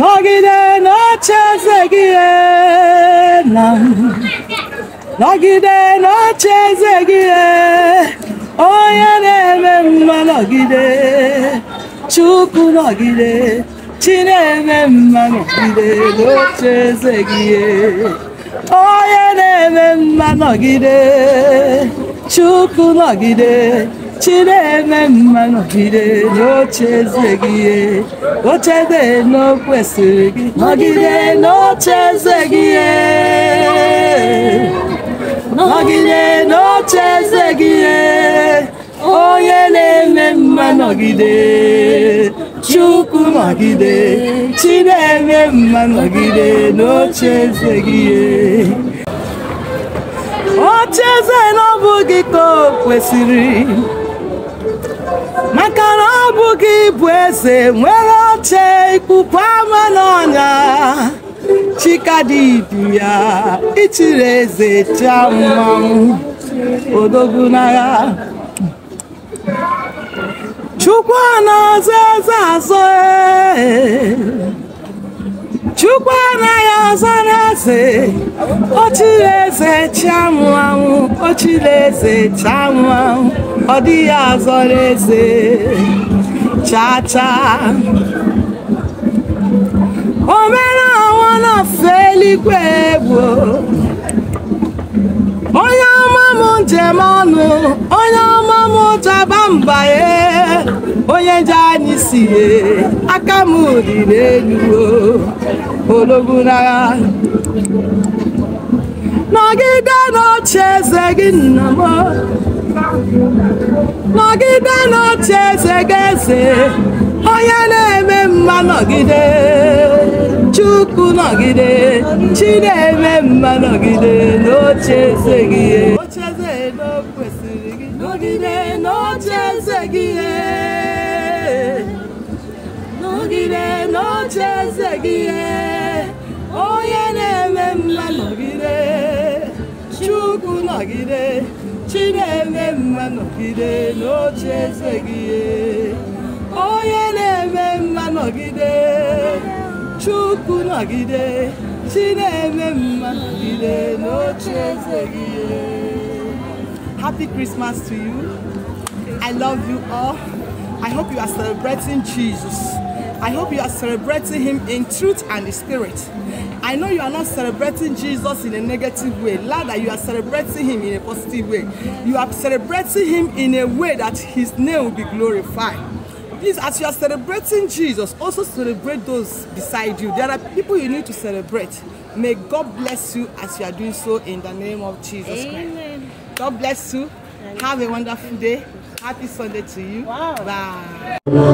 nọgide n'oche eze gị nna m nọgide n'oche eze gị onye na-eme mma nọgide chukwu nọgide chi na-eme mma nọgide n'oche eze gị onye na-eme mma nọgide chukwu nọgide eme mma nọgide n'oche eze gị ochebe n'okwesịrị gị nọgide n'oche gị nọgide n'oche eze gị onye na-eme mma nọgide chukwu nọgide eme mma nọgide n'oche eze gị oche eze na ọ gị ka o kwesịrị maka na ọ bụ bụ eze nwere oche ikpupu ama n'ọnya chikadidu ya ichiri eze chiammanwụ odogwu n'agha chukwu na azụ eze azọ ee chukwu anaghị ọzọ na-eze ochileze chianwụ anwụ ochileze chianwụ anwụ ọ dịghị ọzọ na-eze chacha omere ọnwụ na fe eluigwe gboo m ọnụ onye ọma m ụtaba jani si aka m dị n'elu ologunagha nọgide n'oche eze gị nna m nọgide n'oche eze gị eze onye na-eme mma nọgide chukwu nọgide n'oche eze gị eze na o kwesịrị gị nọgide n'oche eze gị e. nọgide n'oche eze gị e. onye na-eme mma nọgide chukwu nọgide chi na-eme mma nọgide n'oche eze gị e. onye na-eme mma nọgide chukwu nọgide chi na-eme mma nọgide n'oche eze gị Happy Christmas to you. I love you all. I hope you are celebrating Jesus. I hope you are celebrating him in truth and the spirit. I know you are not celebrating Jesus in a negative way. Rather, you are celebrating him in a positive way. You are celebrating him in a way that his name will be glorified. Please, as you are celebrating Jesus, also celebrate those beside you. There are people you need to celebrate. May God bless you as you are doing so in the name of Jesus Amen. Christ. God bless you. Have a wonderful day. Happy Sunday to you. Wow. Bye.